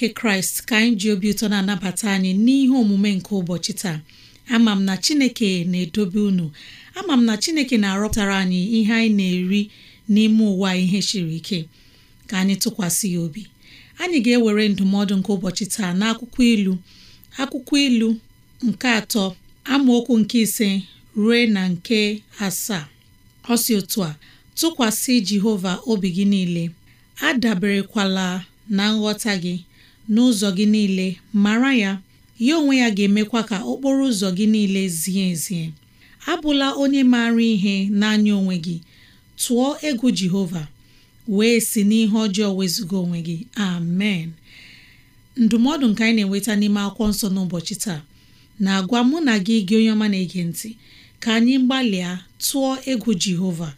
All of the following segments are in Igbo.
nke kraịst ka anyị ji obi ụtọ na-anabata anyị n'ihe omume nke ụbọchị taa ama m na chineke na-edobe unu ama m na chineke na-arọpụtara anyị ihe anyị na-eri n'ime ụwa ihe siri ike ka anyị tụkwasị ya obi anyị ga-ewere ndụmọdụ nke ụbọchị taa akwụkwọ ilu akwụkwọ ilu nke atọ amaokwu nke ise ruo na nke asaa ọ otu a tụkwasị Jehova obi gị niile adaberekwala na nghọta gị n'ụzọ gị niile mara ya ya onwe ya ga-emekwa ka okporo ụzọ gị niile zie ezie abụla onye maara ihe n'anya onwe gị tụọ egwu Jehova wee si n'ihe ọjọọ wezụga onwe gị amen ndụmọdụ nke anyị na-enweta n'ime akwụkwọ nsọ n'ụbọchị taa na-agwa mụ na gị gị onye ọma na-ege ntị ka anyị gbalịa tụọ egwu Jehova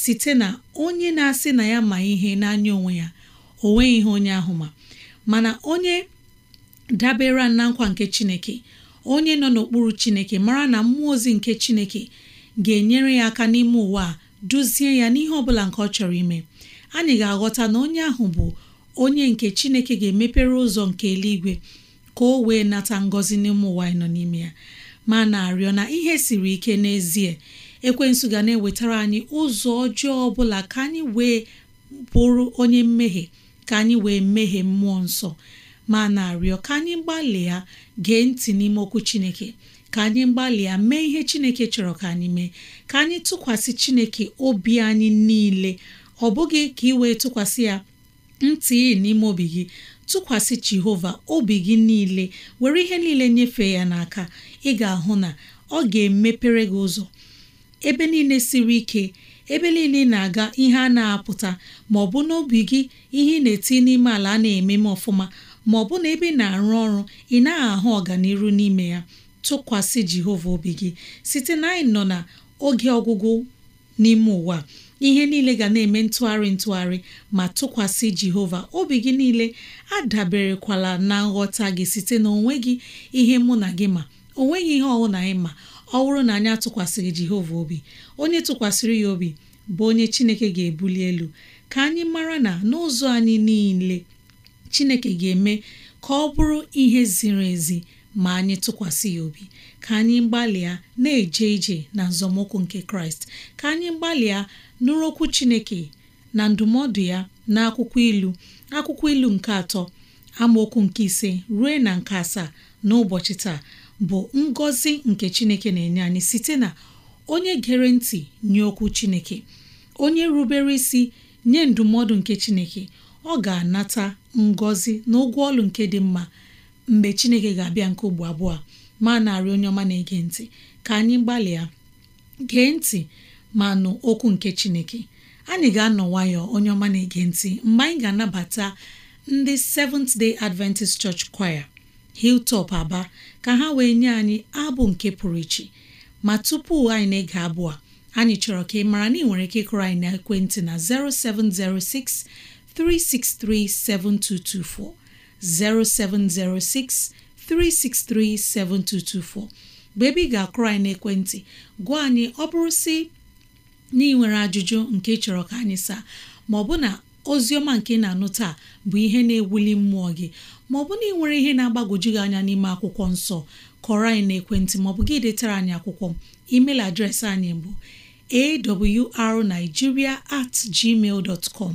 site na onye na-asị na ya ma ihe n'anya onwe ya o nweghị ihe onye ahụ ma mana onye dabere na nkwa nke chineke onye nọ n'okpuru chineke mara na mmụọ ozi nke chineke ga-enyere ya aka n'ime ụwa a duzie ya n'ihe ọbụla nke ọ chọrọ ime anyị ga-aghọta na onye ahụ bụ onye nke chineke ga-emepere ụzọ nke eluigwe ka o wee nata ngọzi n'ime ụwa nọ n'ime ya ma na-arịọ na ihe siri ike n'ezie ekwensu ga na-ewetara anyị ụzọ ọjọọ ọbụla ka anyị wee bụrụ onye mmehie ka anyị wee meghee mmụọ nsọ ma na-arịọ ka anyị gbalịa gee ntị n'ime okwu Chineke ka anyị gbalịa mee ihe Chineke chọrọ ka anyị mee ka anyị tụkwasị Chineke obi anyị niile ọ bụghị ka ị wee tụkwasị ya ntị n'ime obi gị tụkwasị Jehova obi gị niile were ihe niile nyefee ya n'aka ị ga-ahụ na ọ ga-emepere gị ụzọ ebe niile siri ike ebe niile na-aga ihe a na-apụta ma ọ bụ n'obi gị ihe ị na-eti n'ime ala a na-eme m ọfụma ma ọ bụ na ebe ị na-arụ ọrụ ị naghị ahụ ọganiru n'ime ya tụkwasị Jehova obi gị site na anyị nọ na oge ọgwụgwụ n'ime ụwa ihe niile ga na-eme ntụgharị ntụgharị ma tụkwasị Jehova obi gị niile adaberekwala na nghọta gị site na onwe gị ihe mụ na gị ma onweghị ihe ọwụ na anyị ma ọ bụrụ na anyị atụkwasịrị Jehova obi onye tụkwasịrị ya obi bụ onye Chineke ga-ebuli elu ka anyị mara na n'ụzọ anyị niile Chineke ga-eme ka ọ bụrụ ihe ziri ezi ma anyị tụkwasị ya obi ka anyị gbalịa na-eje ije na nzọmụkwụ nke Kraịst ka anyị gbalịa nụrụ okwu Chineke na ndụmọdụ ya na akwụkwọ ilu akwụkwọ ilu nke atọ amaokwu nke ise ruo na nke asaa n'ụbọchị taa bụ ngọzi nke chineke na-enye anyị site na onye gere ntị nye okwu chineke onye rubere isi nye ndụmọdụ nke chineke ọ ga-anata ngọzi na ụgwọ ọlụ nke dị mma mgbe chineke ga-abịa nke ugbo abụọ ma narị onye ọma na-ege ntị ka anyị gbalịa gee ntị ma nụ okwu nke chineke anyị ga-anọ nwayọ onye ọma na-ege ntị mgbe anyị ga-anabata ndị Seventh Day Adventist Church Choir hiltop Aba ka ha wee nye anyị abụ nke pụrụ iche ma tupu anyị na-ege abụ a anyị chọrọ ka ị mara na ị nwere ike ịkụrụ anyị na ekwentị na 0706 363 7224 0706 363 7224 mgbe ebe ị ga-akụrụ anyị n'ekwentị gwa anyị ọ bụrụ si na ị nwere ajụjụ nke chọrọ ka anyị saa ma ọ bụ na ozi ọma nke na-anụ taa bụ ihe na-ewuli mmụọ gị ma ọ bụ na ị nwere ihe na-agbagwoju gị anya n'ime akwụkwọ nsọ kọrọ anyị na ekwentị maọbụ gị detara anyị akwụkwọ email adreesị anyị bụ arigiria at gmail dot com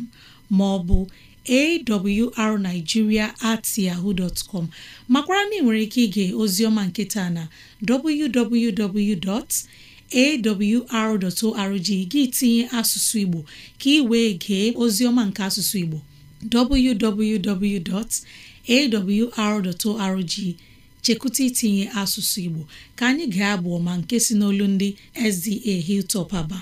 maọbụ awrnigeria at yahoo dot com makwara na ị nwere ike ige ozioma nketa na www.awr.org gị tinye asụsụ Igbo ka ị wee gee ozioma nke asụsụ Igbo awr.org chekwụta itinye asụsụ Igbo ka anyị ga-abụ ọma nke si n'olu ndị SDA Hilltop Aba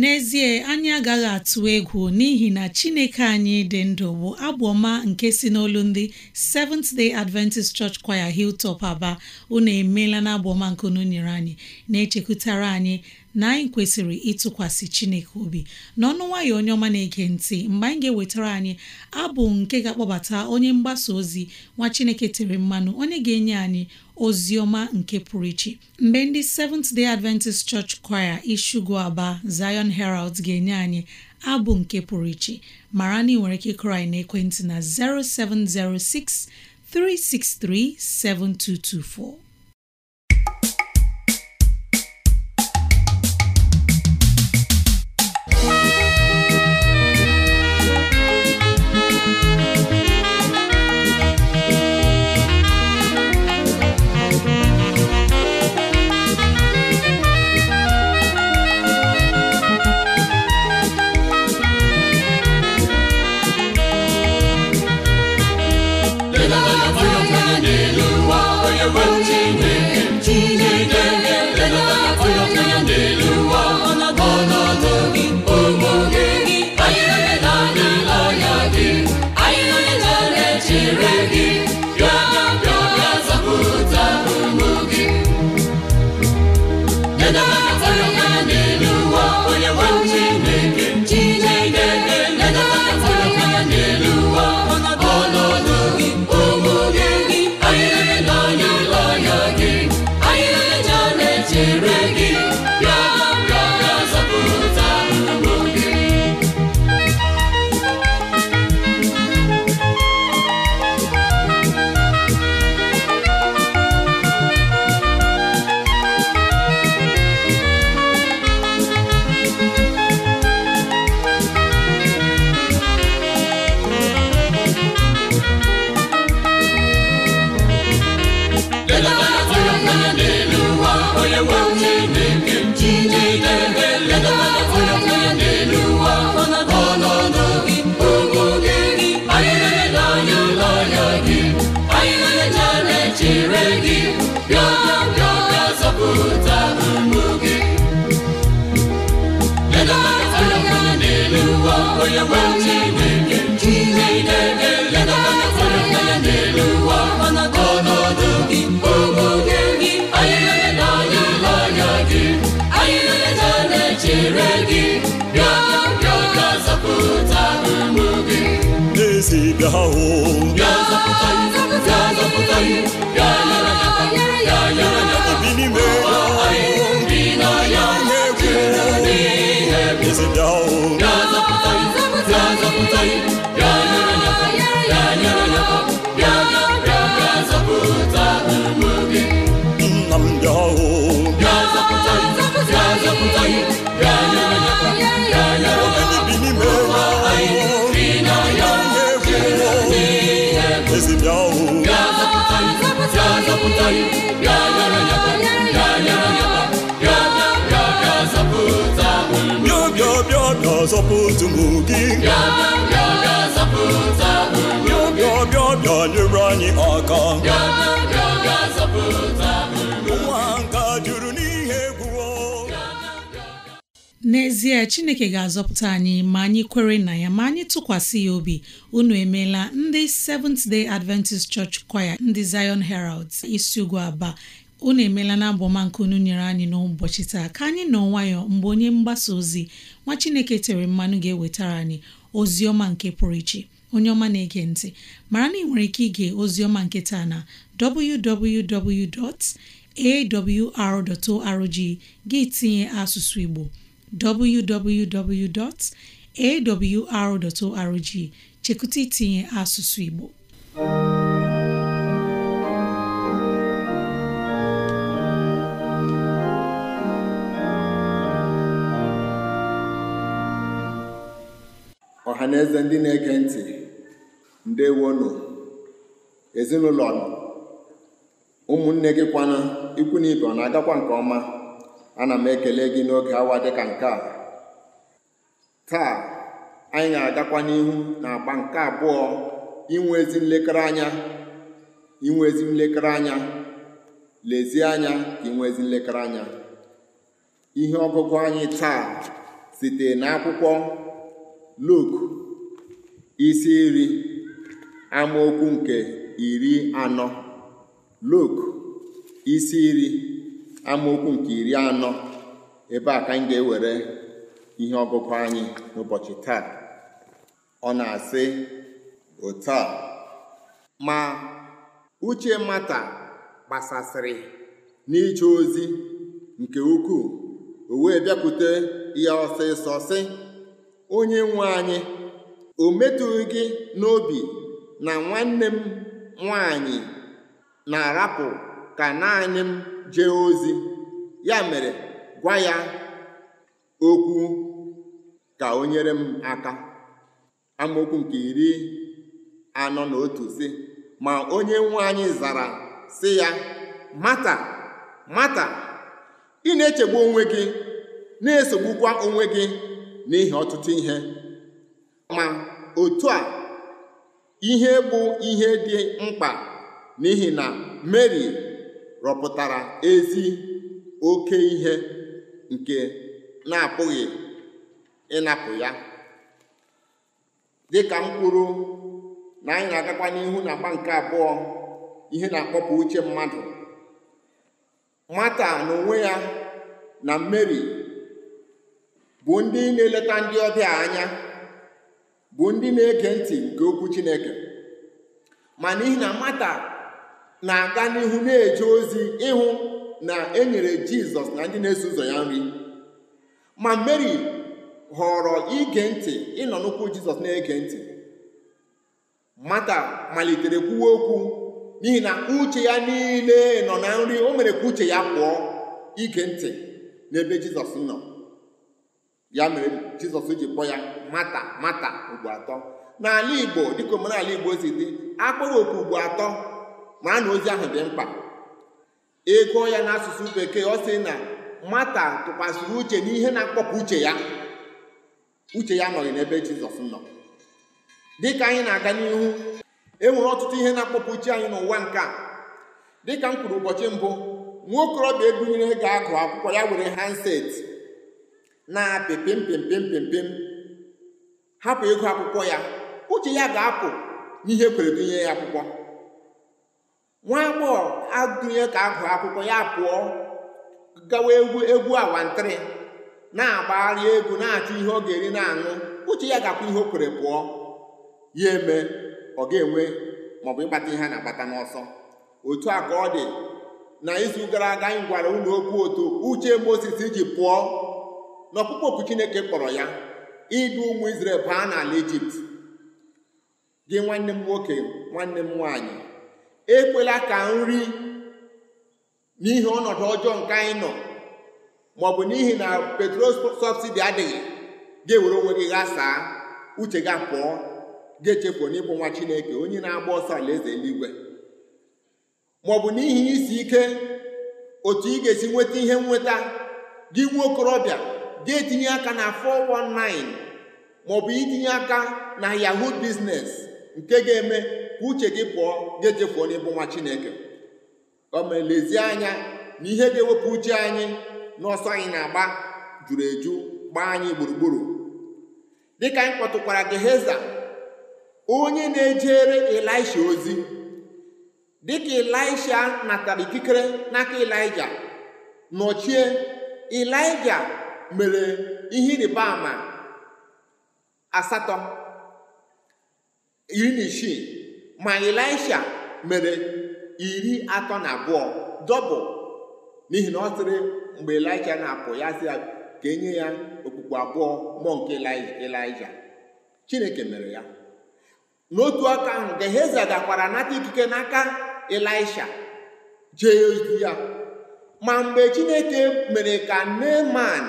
n'ezie anyị agaghị atụ egwu n'ihi na chineke anyị dị ndụ bụ agbọma nke si n'olu ndị Seventh Day Adventist Church Choir Hilltop Aba unu emeela na nke unu nyere anyị na-echekwutara anyị na anyị kwesịrị ịtụkwasị Chineke obi n'ọnụ nwayọ onye ọma na-ege ntị mgbe anyị ga-ewetara anyị abụ nke ga-akpọbata onye mgbasa ozi nwa Chineke tere mmanụ onye ga-enye anyị ozi ọma nke pụrụ iche mgbe ndị Seventh Day Adventist Church Choir Ishugu Aba Zion Herald ga-enye anyị abụ nke pụrụ iche mara na ị nwere ike ịkụrụ anyị ekwentị na 0706 363 7224 ga-azọpụta ụmụ n'ezie chineke ga-azọpụta anyị ma anyị kwere na ya ma anyị tụkwasị ya obi unu emeela ndị Seventh Day Adventist Church Choir ndị Zion Heralds isi ugwu aba unu emeela na abụọma nke unu nyere anyị n'ụbọchị taa ka anyị nọ nwayọ mgbe onye mgbasa ozi nwa Chineke tere mmanụ ga-ewetara anyị ozi ọma nke pụrụ iche onye ọma na-ege ntị mara na ị nwere ike ige ozi ọma nke taa na www.awr.org gị tinye asụsụ Igbo www.awr.org chekụta itinye asụsụ Igbo ha na-eze ndị na-ege ntị ndewonụ ezinụlọ ụmụnne gị kwana ikwu na ibe ọ na-agakwa nke ọma ana m ekele gị n'oge awa dịka nke a taa anyị na agakwa n'ihu na agba nke abụọ inwe ezi nlekere anya inwe ezi nlekere anya lezie anya ka inwe ezi nlekere anya ihe ọgụgụ anyị taa site n'akwụkwọ Luk isi iri amaokwu nke iri anọ luk isi iri amaokwu nke iri anọ ebe a ka m ga-ewere ihe ọgụgụ anyị n'ụbọchị taa ọ na-asị otu a ma uche mata gbasasịrị n'ije ozi nke ukwuu o wee bịakwute ya ọsịsọ sị onye nwe anyị o metụghị gị n'obi na nwanne m nwanyị na-arapụ ka naanị m jee ozi ya mere gwa ya okwu ka o nyere m aka amaokwu nke iri anọ na otu si ma onye nwanyị zara sị ya mata mata ị na-echegbu onwe gị na-esogbukwa onwe gị n'ihi ọtụtụ ihe ma otu a ihe bụ ihe dị mkpa n'ihi na mary rọpụtara ezi oke ihe nke na-apụghị ịnapụ ya ka m kwuru na anyị na-agakwa n'ihu na agba nke abụọ ihe na-akpọpụ uche mmadụ mata n'onwe ya na mary bụ ndị na-eleta ndị ọbịa anya bụ ndị na-ege ntị nke okwu Chineke ma n'ihi na mata na-aga n'ihu na-eje ozi ịhụ na e nyere Jizọs na ndị na-eso ụzọ ya nri ma Mary họrọ ige ntị ịnọ n'ụkwụ Jizọs na-ege ntị mata malitere kwuwe okwu n'ihi na uche ya niile nọ na nri o mere ka uche ya pụọ ige ntị n'ebe Jizọs nọ ya mere jizọs ji kpọ ya mata mata ugbo atọ n'ala igbo dịka omenala igbo si dị akpọrọ oku ugbo atọ ma na ozi ahụ dị mkpa ego ya n'asụsụ bekee ọ sị na mata tụkwasịrị uche n'ihe na-akpọpụ uche ya uche ya nọghị n'ebe jizọs nọ dịka anyị na-aga n'ihu enwere ọtụtụ ihe na-akpọpụ uche anyị n'ụwa nke a dịka m kwuru ụbọchị mbụ nwa okorobịa ebunyere ga-agụ akwụkwọ ya were handset na-apị pim hapụ ịgụ akwụkwọ ya uche ya ga-apụ n'ihe kwere dunye ya akwụkwọ nwa agbọghọ adụnye ka agụ akwụkwọ ya pụọ gawa egwu egwu awantịrị na-agbagharị egwu na-achọ ihe ọ ga-eri na-aṅụ uche ya ga-akwụ ihe o kwere pụọ ya eme ọ ga-enwe maọbụ ịkpata ihe a na-akpata n'ọsọ otu a ka ọ dị na izu gara aga anyị gwara ụlọ okwu otu uche Mozis iji pụọ na ọkpụkpọ oku chineke kpọrọ ya idu ụmụ Izrel baa n'ala Ijipt gị nwanne m nwoke nwanne m nwaanyị ekwela ka nri n'ihi ọnọdụ ọjọọ nke anyị nọ maọbụ n'ihi na petrol sọbsidi adịghị ga-ewere onwe gị ghaa saa uche gị pụọ ga-echepụ n'ịbụ nwa chineke onye na-agba ọsọ alaeze eluigwe maọbụ n'ihi isi ike otu ị ga-esi nweta ihe nweta gị nwa okorobịa ga-etinye aka na 419 maọbụ itinye aka na yahoo biznes nke ga-eme ka uche gị pụọ ga-ejefuo n'ịbụ nwa chineke o anya na ihe ga-ewepụ uche anyị n'ọsọ anyị na-agba juru eju gbaa anyị gburugburu dịka anyị kpọtụkwara Geheza onye na-ejere elisha ozi dịka na natara ikikere n'aka Ịlaịja nọchie Ịlaịja mere ihe ịrịba ama asatọ iri na isii ma elisha mere iri atọ na abụọ dọbụ n'ihi na ọ sịrị mgbe elisha na-apụ ya sị ga enye ya e okpukpe abụọ mmụọ nke elisha Chineke mere ya n'otu aka ahụ Geheza gakwara n'aka ikike n'aka elisha jee ozi ya ma mgbe Chineke mere ka Neman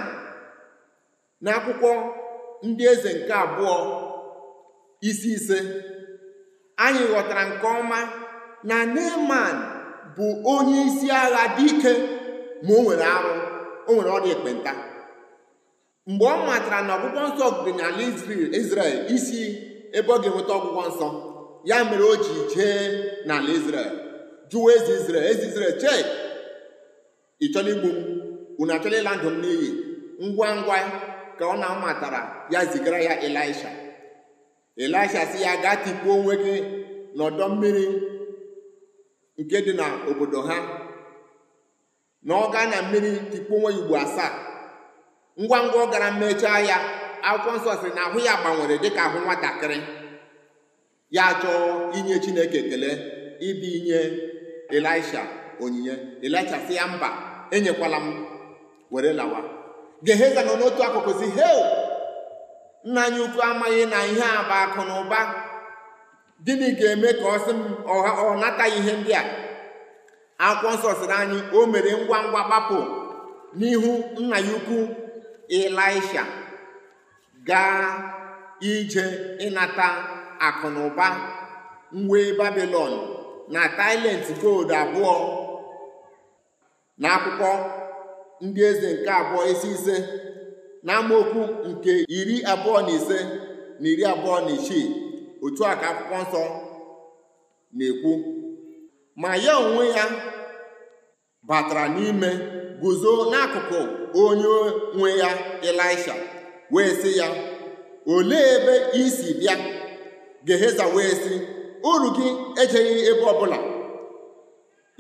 n'akwụkwọ ndị eze nke abụọ isi ise anyị ghọtara nke ọma na Neman bụ onye isi agha dị ike ma o nwere arụ o nwere ọrịa ekpenta mgbe ọ matara na ọgwụgwọ nsọ dị n'ala Izrel isi ebe ọ ga-enweta ọgwụgwọ nsọ ya mere o ji jee n'ala Izrel jụọ eze Izrel eze Izrel chee igbu m unu ịla ndụ m n'iyi ngwa ngwa ka ọ na-amatara ya zigara ya elisha elisha si ya gaa tikpuo onwe gị n'ọdọ mmiri nke dị n'obodo ha na ọ gaa na mmiri tikpuo onwe ya ugbo asaa ngwa ngwa ọ gara mmechaa ya akwụkwọ nsọ sị na ahụ ya gbanwere dịka ahụ nwatakịrị ya chọọ inye Chineke ekele ibi inye elisha onyinye elisha si ya mba enyekwala m were lawa geheza nọ n'otu akụkụ si hel nna anyị ukwu amaghị na ihe a bụ akụ na ụba gịnị ga-eme ka ọ sị m ọ nataghị ihe ndị a akwụkwọ nsọ sịrị anyị o mere ngwa ngwa gbapụ n'ihu nna ya ukwu Ịlaisha gaa ije ịnata akụ na ụba mwe Babilọn na talenti gold abụọ na akwụkwọ ndị eze nke abụọ isi ise na amaokwu nke iri abụọ na ise na iri abụọ na isii otu a ka akwụkwọ nsọ na-ekwu ma ya onwe ya batara n'ime guzo n'akụkụ onye nwe ya elisha wee sị ya olee ebe isi si bịa Geheza wee sị uru gị ejeghị ebe ọbụla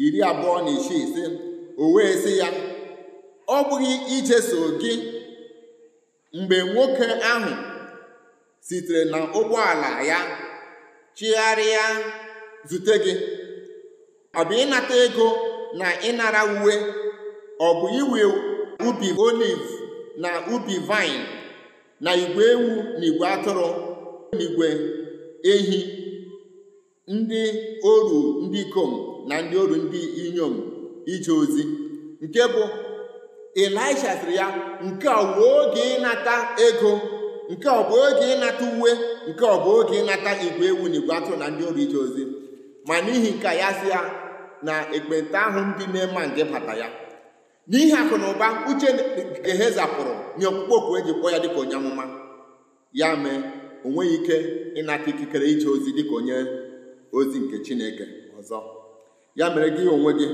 iri abụọ na isii ise, o wee sị ya ọ bụghị ijeso gị mgbe nwoke ahụ sitere na ụgbọala ya chigharịa zute gị ọ bụ ịnata ego na ịnara uwe ọ bụ iwe ubi oliv na ubi vaịn na igwe ewu na igwe atụrụ na ehi ndị oru ndị ikom na ndị oru ndị inyom ije ozi nke bụ Elisha sịrị ya nke ọ bụ oge ịnata ego nke ọ bụ oge ịnata uwe nke ọ bụ oge ịnata igwe ewu na igwe atụ na ndị ọrụ ije ozi ma n'ihi nke ya sị ya na ekpenta ahụ ndị na-ema bata ya n'ihi akụ na ụba uche zapụrụ nye okpukpe okwu eji kpọọ ya dịka onye amụma ya mee o nweghị ike ịnata ikikere ije ozi dịka onye ozi nke chineke ọzọ ya mere gị onwe gị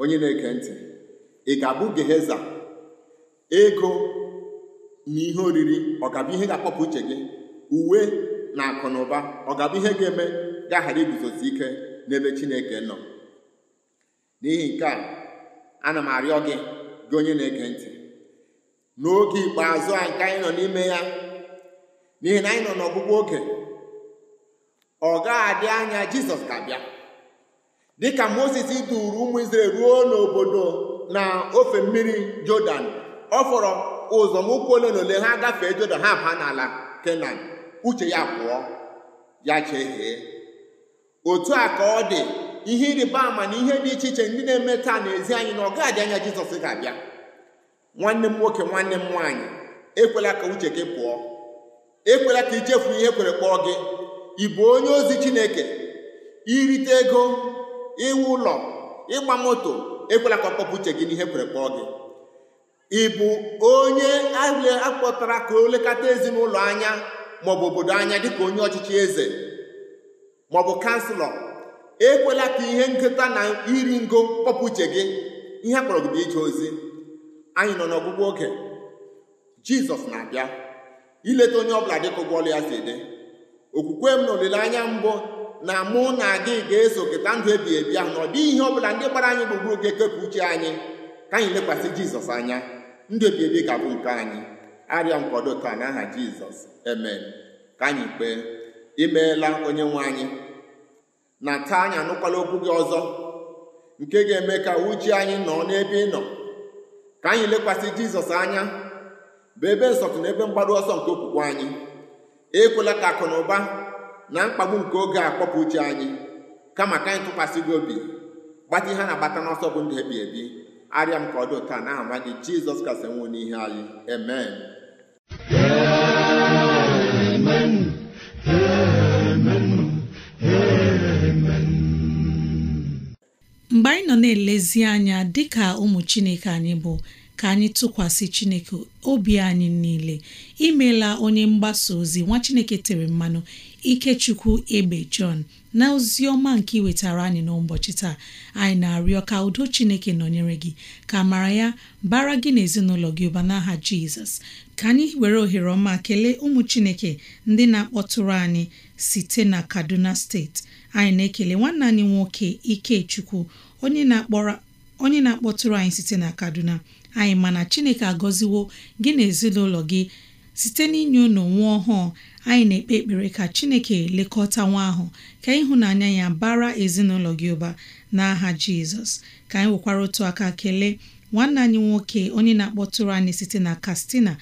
onye na eke ntị ị ga-abụ geheza ego na ihe oriri ọ ga ihe ga-akpọpụ uche gị uwe na akụ na ụba ọ ga ihe ga-eme gaghara aghara iguzosi ike n'ebe chineke nọ n'ihi nke a ana m arịọ gị gị onye na-ege ntị n'oge ikpeazụ a nke anyị nọ n'ime ya n'ihi na anyị nọ n'ọgwụgwụ oge ọ ga-adị anya jizọs ga-abịa dịka moses duru ụmụ Izrel ruo n'obodo na ofe mmiri Jọdan ọ fọrọ ụzọ ụkwụ ole na ole ha gafee Jọdan ha baa n'ala Kenan uche ya pụọ ya chehie otu a ka ọ dị ihe ịrịba ama na ihe dị iche iche ndị na-eme taa n'ezi anyị na ọ gaghị anya Jizọs ga-abịa nwanne m nwoke nwanne m nwaanyị ekwela ka uche gị pụọ ekwela ka ichefu ihe kwere kpọọ gị ị onye ozi Chineke irite ego ịwụ ụlọ ịgba moto ekwela ka ọ uche gị n'ihe e kwere kpọọ gị ị bụ onye akpọtara ka o lekọta ezinụlọ anya maọbụ obodo anya dịka onye ọchịchị eze maọbụ kanselọ ekwela ka ihe nketa na iri ngo kpọpụ uche gị ihe akpọrọ gị bụ ije ozi anyị nọ n'ọgwụgwọ oge jizọs na-abịa ileta onye ọbụla dịka ụgbọ ọlụ ya si dị okwukwe m na olileanya mbụ na mụ na gị ga-eso keta ndụ ebi ebi ahụ na ọ dịghị ihe ọ bụla ndị gbara anyị gburugburu ga-ekepụ uche anyị ka anyị lekwasị jizọs anya ndụ ebi ebi ga-abụ nke anyị arịọ nkwado taa n'aha jizọs eme ka anyị kpee imeela onye nwe anyị na taa anyị anụkwala okwu gị ọzọ nke ga-eme ka uche anyị nọ n'ebe ị nọ ka anyị lekwasị jizọs anya bụ ebe nsọtụ na ebe mgbaru ọsọ nke okwukwe anyị ekwela ka akụ na ụba na mkpagbu nke oge a kpọpụ uche anyị kama ka anyị tụkwasị gị obi gbata ihe na-agbata n'ọsọ bụ ndụ ebi ebi arịa m ka ọ dị ụta n'aha nwa gị jizọs kasị nwụ n'ihe anyị amen mgbe anyị nọ na-elezi anya dịka ụmụ chineke anyị bụ ka anyị tụkwasị chineke obi anyị niile imeela onye mgbasa ozi nwa chineke tere mmanụ Ikechukwu Egbe John na ozi ọma nke wetara anyị n'ụbọchị taa anyị na-arịọ ka udo Chineke nọnyere gị ka mara ya bara gị na ezinụlọ gị ụba n'aha Jizọs ka anyị were ohere ọma kelee ụmụ Chineke ndị na-akpọtụrụ anyị site na Kaduna steeti anyị na-ekele nwanne anyị nwoke Ikechukwu onye na akpọtụrụ anyị site na Kaduna anyị mana Chineke agọziwo gị na ezinụlọ gị site inye unu nwa ọhụụ anyị na-ekpe ekpere ka Chineke lekọta nwa ahụ ka ịhụnanya ya bara ezinụlọ gị ụba n'aha Jizọs ka anyị nwekwara otu aka kelee nwanne anyị nwoke onye na-akpọtụrụ anyị site na Katsina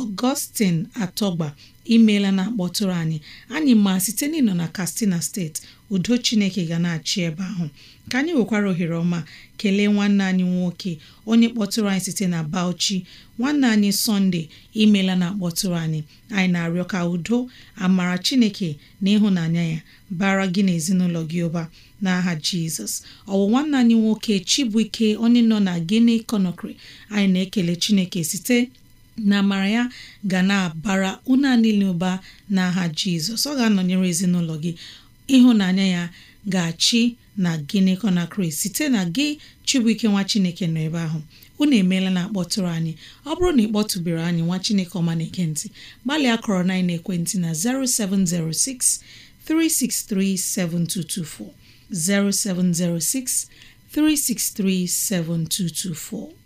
ọgọstin Atọgba imeela na akpọtụrụ anyị anyị ma site n'ịnọ na Katsina steeti udo Chineke ga na-achị ebe ahụ ka anyị nwekwara ohere ọma kelee nwanne anyị nwoke onye kpọtụrụ anyị site na Bauchi nwanne anyị Sọnde imeela na akpọtụrụ anyị anyị na-arịọ ka udo amara Chineke na ịhụnanya ya bara gị na ezinụlọ gị ụba n'aha Jizọs ọwụ nwanne anyị nwoke chibụike onye nọ na gini Conakry anyị na-ekele Chineke site na amara ya ga na-abara una niile ụba n'aha jizọs ọ ga-anọnyere ezinụlọ gị ịhụnanya ya ga-achị na gịnị na kraịst site na gị chibuike nwa chineke nọ ebe ahụ unu emeela na akpọtụrụ anyị ọ bụrụ na ị kpọtụbere anyị nwa chineke ọma na-ekentị gbalịa kọrọ na ekwentị na 0706 363 7224 0706 363 7224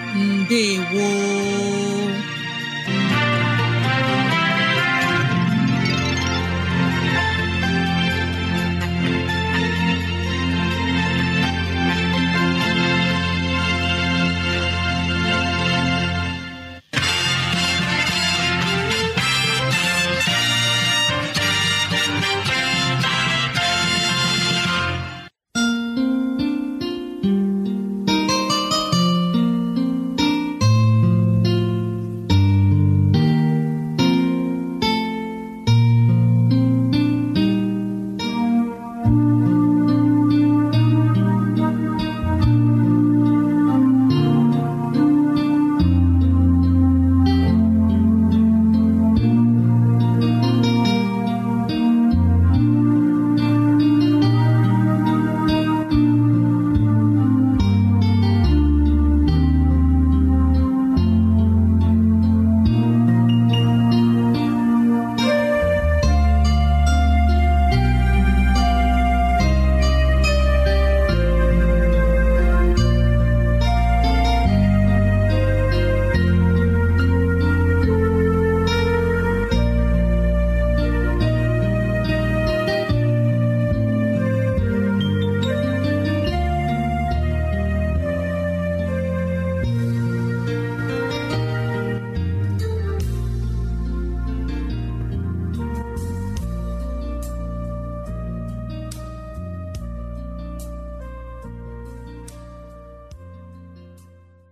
ndewo